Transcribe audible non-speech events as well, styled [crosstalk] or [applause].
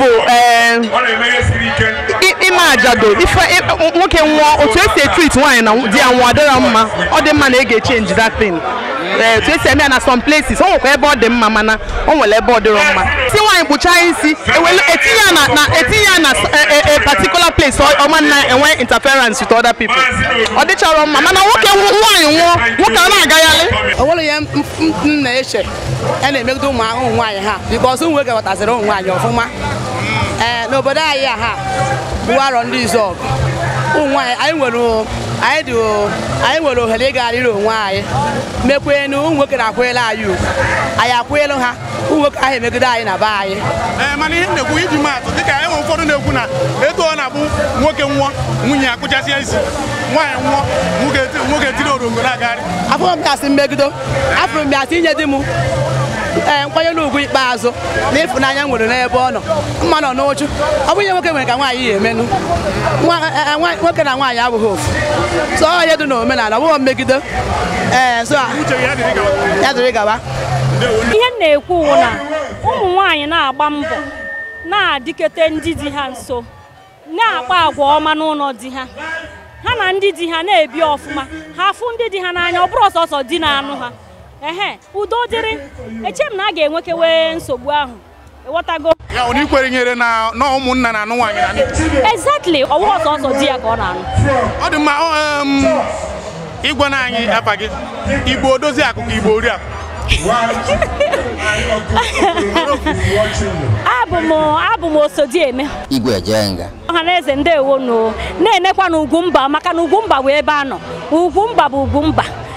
ya bụ ịma eh, ajado nwoke nwụọ otu esi etrit nwaanyị na di ya nwụọ adịra mma ọ dị mma na ị ga-echenji that thing etu eh, esi eme ya na some places o nwekwa ebe ọ dị mma mana o nwere ebe ọ dịrọ mma si nwaanyị kpụchaa isi etinye e ya na a e e, particular place ọma na enwe interference with other people ọ dịchọrọ mma mana nwoke nwaanyị nwụọ nwoke ọ na-agagharị o nwere ihe m na-eche a na-emegide ụmụ ahụhụ nwaanyị ha because ụmụ nwoke ụmụ nwaanyị ọfụma Eh, n'obodo anyị a ha bụ arọ ndị izọg ụmụ anyị anyị nwere ohere ịga ịgagharịrị onwe anyị mekwe na ụmụ nwoke na-akwụnyere anyị ugwu anyị akwụnyelu ha ụmụ nwoke ahụ emegide anyị na be anyị eh, mana ihe na-ekwu iji maatụ dịka enwe ụfọdụ na-ekwu na etu ọ na-abụ nwoke nwụọ nwunye ya kụchasịa isi nwaanyị nwụọ nwoke tiri orongoro agagharị afụrụ m ya mmegido afọ m inye di m ee eh, n'ugwu ikpeazụ na ịfụnanya nwere n'ebe ọ nọ mma nọ n'uchu ọ bụ ihe nwoke nwere ka nwaanyị ya emenụ eh, eh, nwoke na nwaanyị abụghị ofu so ọ ihe dị n'omenala ọ bụghị mmegide ee so ya dịrị gaba ihe m na-ekwu wụ na ụmụ nwaanyị na-agba mbọ na-adịkete ndị di ha nso na-akpa agwa ọma n'ụlọ di ha ha na ndị di ha na-ebi ọfụma ha fụ ndị di ha n'anya ọ bụrụ ọsọsọ di na anụ ha ehe udo dịrị eche na a ga-enwekewe nsogbu ahụ ịghọtago ya ọ ikwere nyere na na ụmụnna na anụ nwaanyị na exactly ọwụwa ọsọ ọsọ di ya ka ọ na-anụ ọ dị mma ịgwa na anyị gị igbo akụkụ igbo ori [laughs] abụ m osodieme na eze ndewo na na-enekwa na ugwumba maka na ugwumba bụ ebe a nọ ugwumba bụ ugwumba